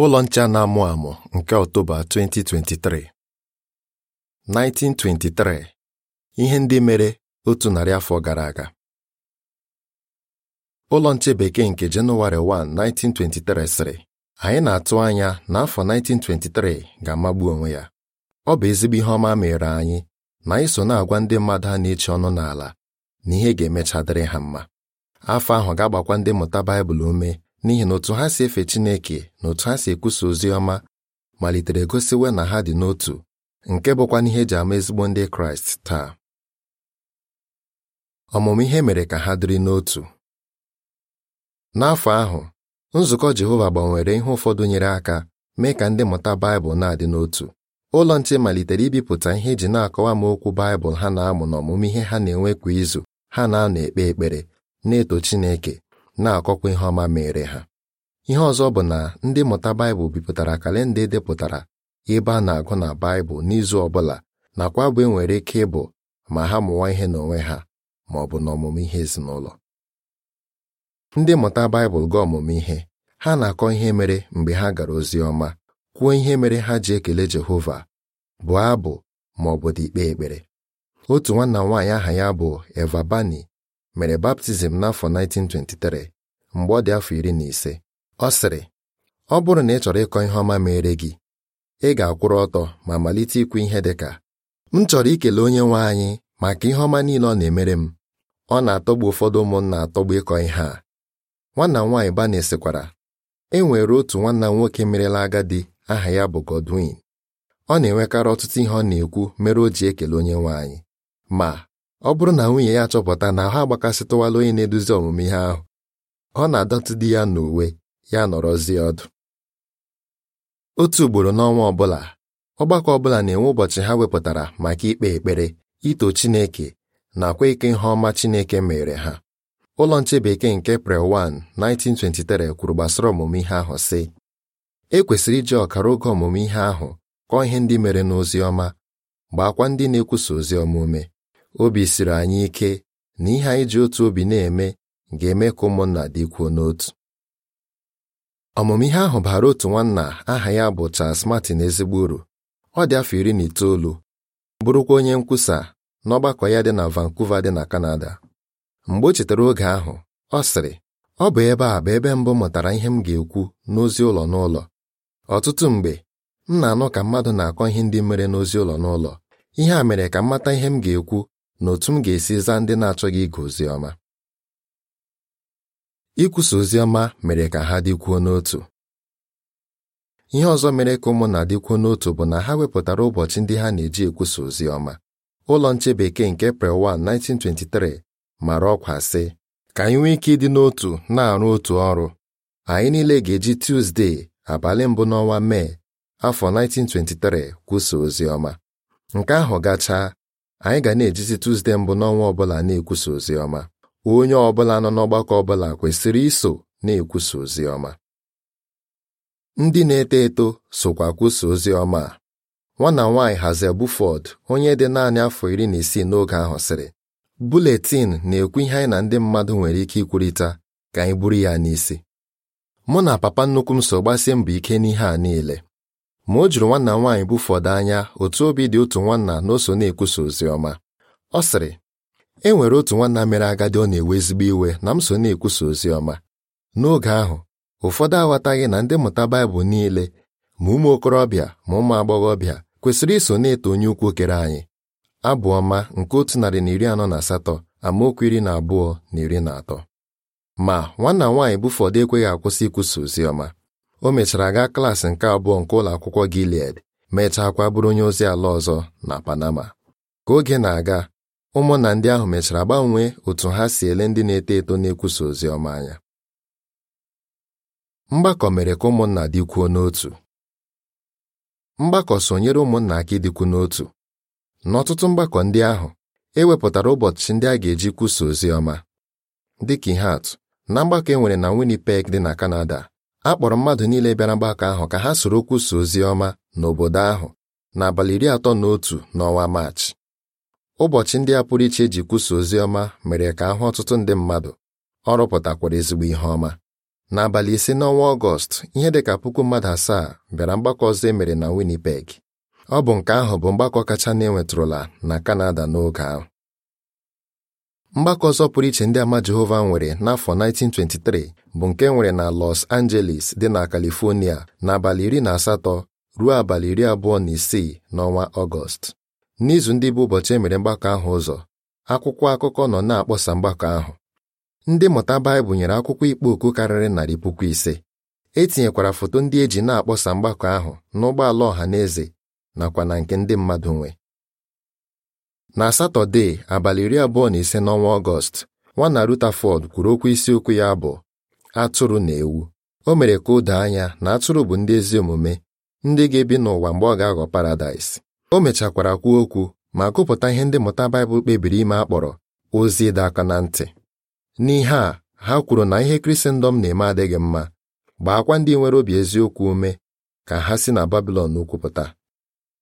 Ụlọ nche na-amụ amụ nke Ọktoba 2023 1923 ihe ndị mere otu narị afọ gara aga ụlọ nche bekee nke Jenụwarị 1 1923 sịrị anyị na-atụ anya na afọ 1923 ga-amagbu onwe ya ọ bụ ezigbo ihe ọma mere anyị na anyị so na-agwa ndị mmadụ a na eche ọnụ n'ala na ihe ga-emecha ha mma afọ ahụ ga-agbakwa ndị mmụta Baịbụl ume n'ihi na otu ha si efe Chineke na otu ha si ekwusa ozi ọma malitere gosiwe na ha dị n'otu nke bụkwa n'ihe eji ama ezigbo ndị Kraịst taa ọmụmụ ihe mere ka ha dịrị n'otu n'afọ ahụ nzukọ Jehova gbanwere ihe ụfọdụ nyere aka mee ka ndị mmụta Baịbụl na-adị n'otu ụlọ nche malitere ibipụta ihe eji na-akọwa m okwu Baịbụl ha na-amụ ọmụmụ ihe ha na-enwe kwa izu ha na-anọ ekpe ekpere na-eto Chineke na-akọkwa ihe ọma mere ha ihe ọzọ bụ na ndị mmụta Baịbụl bipụtara kalenda edepụtara ebe a na-agụ na Baịbụl n'izu ọbụla nakwa bụ enwere ike ịbụ ma ha mụwa ihe n'onwe ha ma ọ bụ n'ọmụmụ ihe ezinụlọ ndị mmụta Baịbụl ga ọmụmụ ihe ha na-akọ ihe mere mgbe ha gara ozi ọma kwuo ihe mere ha ji ekele Jehova bụ abụ ma ọ bụ dị ikpe ekpere otu nwanna m nwaanyị aha ya bụ Eva Bani mere baptizim n'afọ 1923 mgbe ọ dị afọ iri na ise ọ sịrị ọ bụrụ na ị chọrọ ịkọ ihe ọma mere gị ị ga-akwụrụ ọtọ ma malite ikwu ihe dị ka m chọrọ ikele onye nwe anyị maka ihe ọma niile ọ na-emere m ọ na-atọgbu ụfọdụ ụmụnna atọgbu ịkọ ihe a nwanna m nwaanyị Banesịkwara e nwere otu nwanna m nwoke merela agadi aha ya bụ Godwin ọ na-enwekarị ọtụtụ ihe ọ na-ekwu mere o ji ekele onye nwe anyị ma ọ bụrụ na nwunye ya chọpụta na ha agbakasịtụwala onye na-eduzi ọmụmụ ihe ahụ ọ na-adọtụ di ya n'uwe ya nọrọzie ọdụ otu ugboro n'ọnwa ọbụla ọgbakọ ọbụla na-enwe ụbọchị ha wepụtara maka ikpe ekpere ito Chineke nakwa ike ihe ọma Chineke mere ha ụlọ nche bekee nke 1 1923 kwuru gbasara ọmụmụ ihe ahụ sị e kwesịrị iji ọkara oge ọmụmụ ihe ahụ kọọ ihe ndị mere n'ozi ọma gbaakwa ndị na-ekwusa ozi ọma ume obi siri anyị ike na ihe anyị ji otu obi na-eme ga-eme ka ụmụnna dịkwuo n'otu ọmụmụ ihe ahụ bara otu nwanna aha ya bụ Charles Martin ezigbo uru ọ dị afọ iri na itoolu bụrụkwa onye nkwusa n'ọgbakọ ya dị na Vancouver dị na Canada mgbe o chetara oge ahụ ọ sịrị ọ bụ ebe a bụ ebe mbụ mụtara ihe m ga-ekwu n'ozi ụlọ n'ụlọ ọtụtụ mgbe m na-anụ ka mmadụ na-akọ ihe ndị mere n'ozi ụlọ n'ụlọ ihe a mere ka m mata ihe m ga-ekwu na otu m ga-esi zaa ndị na-achọghị ịga ozi ọma ikwusa ozi ọma mere ka ha dịkwuo n'otu ihe ọzọ mere ka na dịkwuo n'otu bụ na ha wepụtara ụbọchị ndị ha na-eji ekwusa ozi ọma ụlọ nche bekee nke pre 1 1923 mara ọkwa sị ka anyị nwee ike ịdị n'otu na-arụ otu ọrụ anyị niile ga-eji Tuzdee abalị mbụ n'ọnwa Mee afọ 1923 kwusa ozi ọma nke ahụ gachaa anyị ga na-ejizi Tuzde mbụ n'ọnwa ọbụla na-ekwusa ozi ọma onye ọbụla nọ n'ọgbakọ ọbụla kwesịrị iso na-ekwusa ozi ọma ndị na-eto eto sokwa kwusa ozi ọma a nwana nwaanyị Hazel Buford onye dị naanị afọ iri na isii n'oge ahụ sịrị buletin na-ekwu ihe anyị na ndị mmadụ nwere ike ikwurịta ka anyị buru ya n'isi mụ na papa nnukwu m so gbasie mbọ ike n'ihe a niile ma o juru nwanna m nwaanyị bufọdụ anya otu obi dị otu nwanna na o so na-ekwusa ozi ọma ọ sịrị e nwere otu nwanna mere agadi ọ na-ewe ezigbo iwe na m so na-ekwusa ozi ọma n'oge ahụ ụfọdụ aghọtaghị na ndị mmụta Baịbụl niile ma ụmụ okorobịa ma ụmụ agbọghọbịa kwesịrị iso na-eto onye ukwu kere anyị abụ ọma nke otu narị na iri anọ na asatọ amaokwu iri na abụọ na iri na atọ ma nwanna nwaanyị bufọdụ ekweghị akwụsị ikwusa ozi ọma o mechara gaa klaasị nke abụọ nke ụlọ akwụkwọ Gilead mechakwa bụrụ onye ozi ala ọzọ na Panama ka oge na-aga ụmụnna ndị ahụ mechara gbanwee otu ha si ele ndị na-eto eto na-ekwusa ozi ọma anya mgbakọ mere ka ụmụnna dịkwuo n'otu mgbakọ sonyere ụmụnna aka ịdịkwu n'otu n'ọtụtụ mgbakọ ndị ahụ ewepụtara ụbọchị ndị a ga-eji kwusa ozi ọma dịka ihe atụ na mgbakọ e nwere na Winnipeg dị na Kanada a kpọrọ mmadụ niile bịara mgbakọ ahụ ka ha soro kwusa ozi ọma n'obodo ahụ n'abalị iri atọ na otu n'ọnwa maachị ụbọchị ndị a pụrụ iche eji kwusa ozi ọma mere ka ahụ ọtụtụ ndị mmadụ ọ rụpụtakwara ezigbo ihe ọma n'abalị ise n'ọnwa ọgọst ihe dị ka puku mmadụ asaa bịara mgbakọ ọzọ e mere na Winnipeg ọ bụ nke ahụ bụ mgbakọ kacha na-enwetụrụla na Kanada n'oge ahụ mgbakọ ọzọ pụrụ iche ndị ama Jehova nwere n'afọ 1923 bụ nke nwere na Los Angeles dị na California n'abalị iri na asatọ ruo abalị iri abụọ na isii n'ọnwa Ọgọst n'izu ndị bụ ụbọchị emere mgbakọ ahụ ụzọ akwụkwọ akụkọ nọ na-akpọsa mgbakọ ahụ ndị mmụta Baịbụl nyere akwụkwọ ikpo okwu karịrị narị puku ise etinyekwara foto ndị e ji na-akpọsa mgbakọ ahụ n'ụgbọala ọha na eze nakwa na nke ndị mmadụ nwe na satọde abalị iri abụọ na ise n'ọnwa ọgọst nwana Rutherford kwuru okwu isiokwu ya bụ atụrụ na ewu o mere ka o doo anya na atụrụ bụ ndị ezi omume ndị ga-ebi n'ụwa mgbe ọ ga-aghọ paradaịs o mechakwara kwuo okwu ma gụpụta ihe ndị mmụta Baịbụl kpebiri ime akpọrọ ozi ịdọ aka na ntị n'ihe a ha kwuru na ihe Krisendọm na-eme adịghị mma gbaakwa ndị nwere obi eziokwu ume ka ha si na Babilọn ukwupụta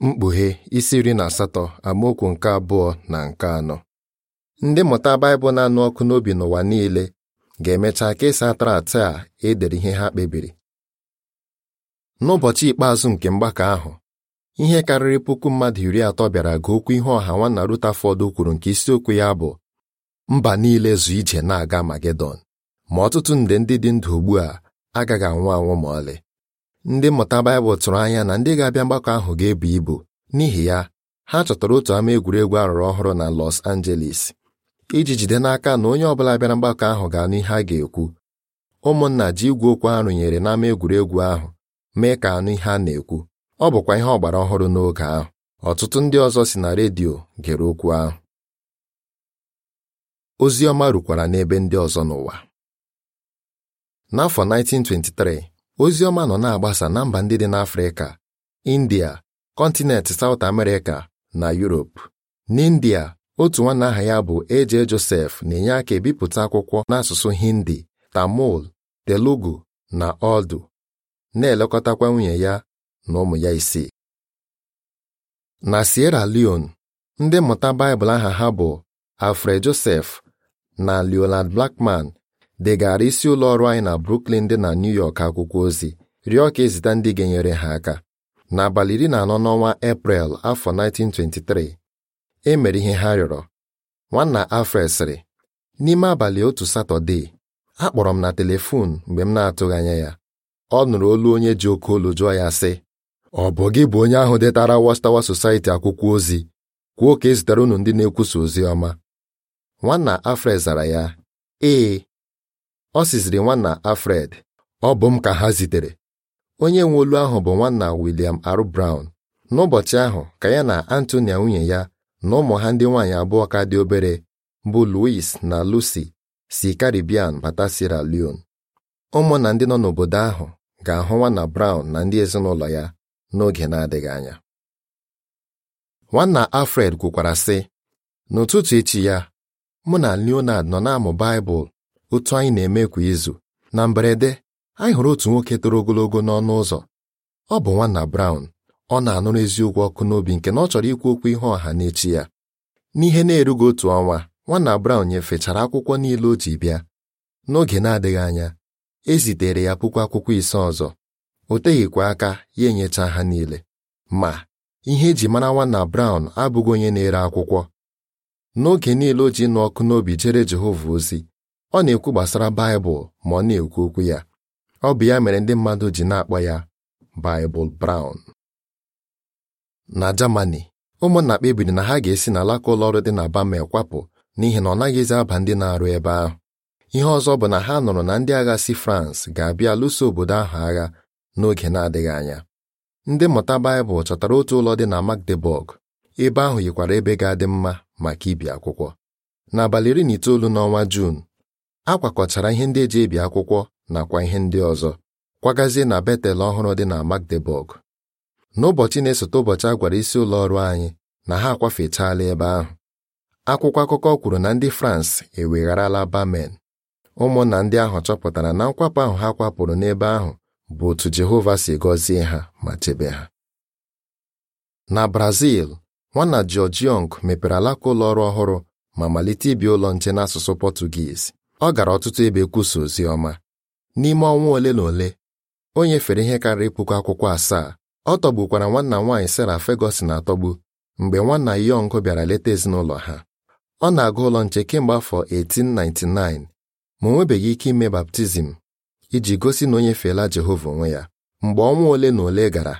mkpughe isi iri na asatọ amaokwu nke abụọ na nke anọ ndị mmụta Baịbụl na-anụ ọkụ n'obi n'ụwa niile ga-emecha kesaa e atara a edere ihe ha kpebiri n'ụbọchị ikpeazụ nke mgbakọ ahụ ihe karịrị puku mmadụ iri atọ bịara gụ okwu ihe ọha nwanna Rutherford kwuru nke isiokwu ya bụ mba niile zụ ije na-aga Magedọn ma ọtụtụ nde ndị dị ndụ ugbu a agaghị anwụ anwụ ma ọlị ndị mmụta Baịbụl tụrụ anya na ndị ga-abịa mgbakọ ahụ ga-ebu ibu n'ihi ya ha chọtara otu ama egwuregwu arụrụ ọhụrụ na Los Angeles iji jide n'aka na onye ọbụla bịara mgbakọ ahụ ga n'ihe a ga-ekwu ụmụnna ji igwe okwu arụnyere n'ama egwuregwu ahụ mee ka anụ ihe a na-ekwu ọ bụkwa ihe ọgbara ọhụrụ n'oge ahụ ọtụtụ ndị ọzọ si na redio gere okwu ahụ ozi ọma rukwara n'ebe ndị ọzọ n'ụwa n'afọ 1923 ozi ọma nọ na-agbasa na mba ndị dị n'Afrịka India kọntinent South America na Europe n'India otu nwanne aha ya bụ Eje Josef na-enye aka ebipụta akwụkwọ n'asụsụ Hindi Tamil Telugu na Urdu na-elekọtakwa nwunye ya na ụmụ ya isii na Sierra Leone ndị mmụta Baịbụl aha ha bụ Alfred Josef na Leonard Blackman degara isi ụlọ ọrụ anyị na Brooklyn dị na New York akwụkwọ ozi rịọ ka ezita ndị ga-enyere ha aka n'abalị iri na anọ n'ọnwa Eprel afọ 1923 e mere ihe ha rịọrọ nwanna Alfred sịrị n'ime abalị otu Satọde akpọrọ m na telefon mgbe m na-atụghị anya ya ọ nụrụ olu onye ji oke olu jụọ ya sị ọ bụ gị bụ onye ahụ detara Watchtower Society akwụkwọ ozi kwuo ka e zụtara unu ndị na-ekwusa ozi ọma nwanna Alfred zara ya ee ọ sịziri nwanna Alfred ọ bụ m ka ha zitere onye nwe olu ahụ bụ nwanna William R. Brown n'ụbọchị ahụ ka ya na Antonia nwunye ya na ụmụ ha ndị nwaanyị abụọ ka dị obere bụ Louis na Lucy si Caribbean bata Sierra Leone na ndị nọ n'obodo ahụ ga-ahụ nwanna Brown na ndị ezinụlọ ya n'oge na-adịghị anya nwanna Alfred kwukwara sị n'ụtụtụ echi ya mụ na Leonard nọ na-amụ Baịbụl otu anyị na-eme kwa izu na mberede anyị hụrụ otu nwoke toro ogologo n'ọnụ ụzọ ọ bụ nwanna Brown ọ na-anụrụ eziokwu ọkụ n'obi nke na ọ chọrọ ikwu okwu ihe ọha n'echi ya n'ihe na-erughị otu ọnwa nwanna Brown nyefechara akwụkwọ niile o ji bịa n'oge na-adịghị anya e zitere ya puku akwụkwọ ise ọzọ o teghịkwa aka ya enyecha ha niile ma ihe eji mara nwanna Brown abụghị onye na-ere akwụkwọ n'oge niile o ji nụ ọkụ n'obi jere Jehova ozi ọ na-ekwu gbasara Baịbụl ma ọ na-ekwu okwu ya ọ bụ ya mere ndị mmadụ ji na-akpọ ya Baịbụl Brown na Germany ụmụnna kpebiri na ha ga-esi n'alaka alaka ụlọọrụ dị na Bamel kwapụ n'ihi na ọ naghịzi aba ndị na-arụ ebe ahụ ihe ọzọ bụ na ha nụrụ na ndị agha si France ga-abịa lụso obodo ahụ agha n'oge na-adịghị anya ndị mmụta Baịbụl chọtara otu ụlọ dị na Magdeburg ebe ahụ yikwara ebe ga-adị mma maka ibi akwụkwọ n'abalị iri na itoolu n'ọnwa Jun a kwakọchara ihe ndị eji ebi akwụkwọ nakwa ihe ndị ọzọ kwagazie na Betel ọhụrụ dị na Magdeburg n'ụbọchị na-esote ụbọchị a gwara isi ụlọ ọrụ anyị na ha akwafechaala ebe ahụ akwụkwọ akụkọ kwuru na ndị France ewegharala Bamen ụmụnna ndị ahụ chọpụtara na nkwapụ ahụ ha kwapụrụ n'ebe ahụ bụ otu Jehova si gọzie ha ma chebe ha na Brazil nwanna George mepere alaka ụlọ ọrụ ọhụrụ ma malite ibi ụlọ nche n'asụsụ Pọtụgiz ọ gara ọtụtụ ebe kwusa ozi ọma n'ime ọnwa ole na ole o nyefere ihe karịrị puku akwụkwọ asaa ọ tọgbukwara nwanna nwaanyị sara Ferguson atọgbu mgbe nwanna yọngụ bịara leta ezinụlọ ha ọ na-aga ụlọ nche kemgbe afọ 1899 ma o nwebeghị ike ime baptizim iji gosi na o nyefeela Jehova onwe ya mgbe ọnwa ole na ole gara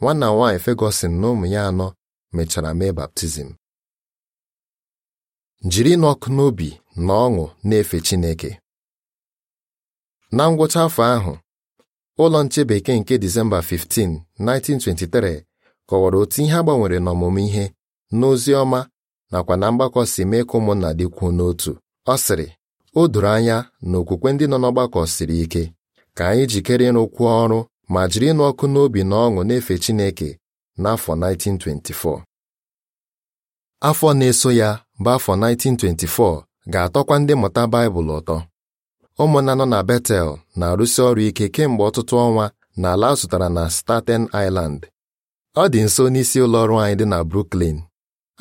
nwanna nwaanyị fegosin na ụmụ ya anọ mechara mee baptizim jiri n'ọkụ n'obi na ọṅụ na-efe Chineke na ngwụcha afọ ahụ ụlọ nche bekee nke Disemba 15, 1923 kọwara otu ihe agbanwere n'ọmụmụ ihe n'ozi ọma nakwa na mgbakọ si mee ka ụmụnna dịkwuo n'otu ọ sịrị o doro anya na okwukwe ndị nọ n'ọgbakọ siri ike ka anyị jikere ịrụkwu ọrụ ma jiri ịnụ ọkụ n'obi na ọṅụ na-efe Chineke n'afọ 1924 afọ na-eso ya bụ afọ 1924 ga-atọkwa ndị mmụta Baịbụl ụtọ ụmụnna nọ na Betel na-arụsi ọrụ ike kemgbe ọtụtụ ọnwa na ala zụtara na Staten Island ọ dị nso n'isi ụlọ ọrụ anyị dị na Brooklyn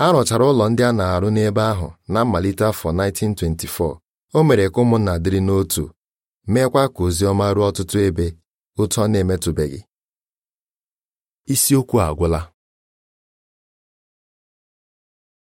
a rụchara ụlọ ndị a na-arụ n'ebe ahụ na mmalite afọ 1924 o mere ka ụmụnna dịrị n'otu meekwa ka ozi ọma ruo ọtụtụ ebe otu ọ na-emetụbeghị isiokwu agwụla